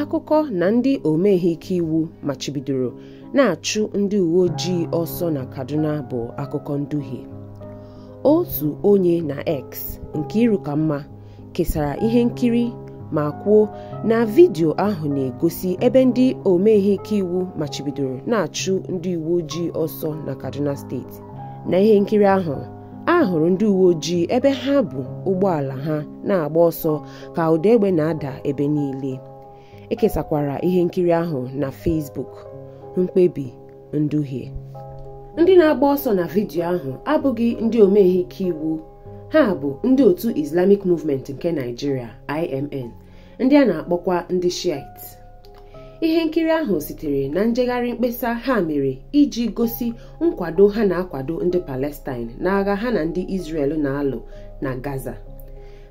akụkọ na ndị ihe ike iwu machibidoro na-achụ ndị uwe ojii ọsọ na Kaduna bụ akụkọ nduhie otu onye na X nke ka mma kesara ihe nkiri ma kwuo na vidio ahụ na-egosi ebe ndị ihe ike iwu machibidoro na-achụ ndị uwe ojii ọsọ na Kaduna steeti na ihe nkiri ahụ a hụrụ ndị uwe ojii ebe ha bụ ụgbọala ha na-agba ọsọ ka ụda egbe na-ada ebe niile ekesakwara ihe nkiri ahụ na Facebook mkpebi nduhie ndị na-agba ọsọ na vidiyo ahụ abụghị ndị omehike ike iwu ha bụ ndị otu Islamic Movement nke Nigeria IMN ndị a na-akpọkwa ndị Shiite ihe nkiri ahụ sitere na njegharị mkpesa ha mere iji gosi nkwado ha na-akwado ndị Palestine n'agha ha na ndị Israel na-alụ na Gaza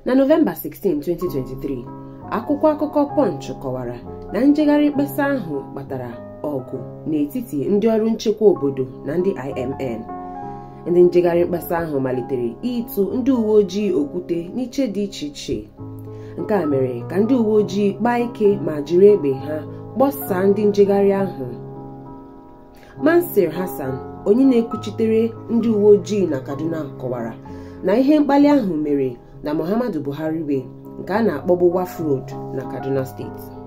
na Nọvemba 16, 2023 akwụkwọ akụkọ Punch kọwara na njegharị mkpesa ahụ kpatara ọgụ n'etiti ndị ọrụ nchekwa obodo na ndị IMN ndị njegharị mkpesa ahụ malitere ịtụ ndị uwe ojii okwute n'iche dị iche iche nke a mere ka ndị uwe ojii kpaa ike ma jiri egbe ha gbasaa ndị njegharị ahụ Mansir Hassan onye na-ekwuchitere ndị uwe ojii na Kaduna kọwara na ihe mkpali ahụ mere na Muhammadu Buhari wee nke a na wafrod na Kaduna steeti